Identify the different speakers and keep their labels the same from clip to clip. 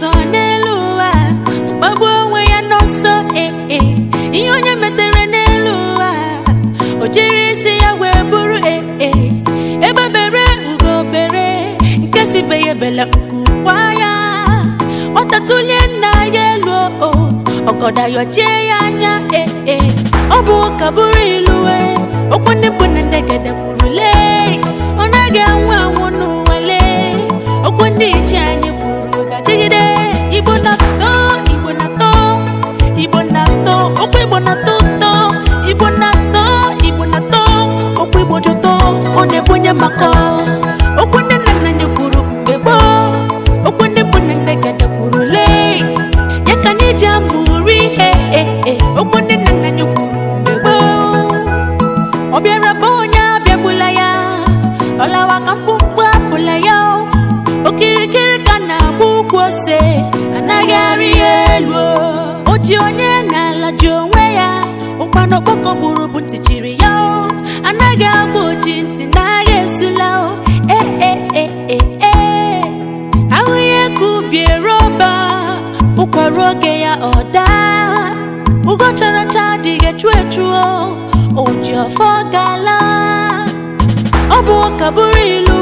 Speaker 1: sọ n'elu ụwa gbagbuo onwe ya n'ọsọ ee eh, eh. ihe onye metere n'elu ụwa o jiri isi ya wee bụrụ ee eh, ebebere bere nke sibeghị ebele nkukwa ya ọ tatulie nna ya elu o ọgọda yọchie ya anya ee ọ bụ ụka bụrụ ilu okwu ndị mbụ na ndegede mkpụmkpụ apụla ya okirikiri ka na-agba ụgwọ ose anaghị arị ya elu Oji ji onye n'ala ji onwe ya ụkpana ọkpọkọ gburu bụ ntị ya anaghị agba oji ntị n'agha esula ee e, e, e, ahụ ya ka roba bụkwara oge ya ọ daa ugo characha adịghị echu echuo oji ọfọ gala ọ bụ ọka bụrụ ilu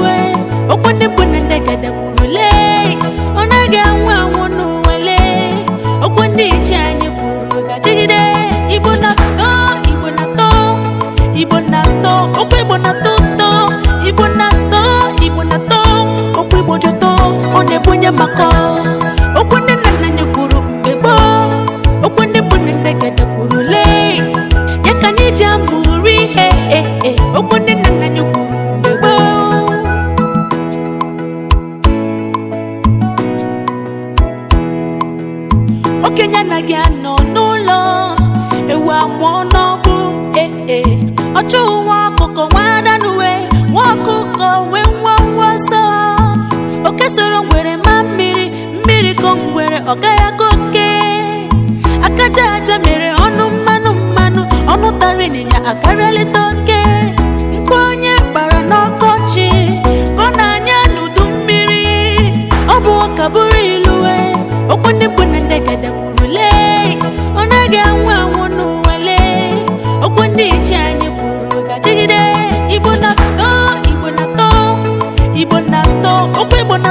Speaker 1: Aka soro ngwere ma mmiri mmiri ko ngwere ọ gaghị oke aka aja mere ọnụ mmanụ mmanụ ọnụ tara ịnyịnya akarịalịta oke mkpu onye gbara n'ọkọchị ọ na-anya n'udu mmiri ọ bụ ụka bụrụ ilue okwu ndị bụ na ndegede kwuru lee ọ naghị anwụ anwụ n'ụwa lee okwu ndị iche anyị kwuru ga-adịgide Igbo na-atọ Igbo na-atọ Igbo na-atọ okwu Igbo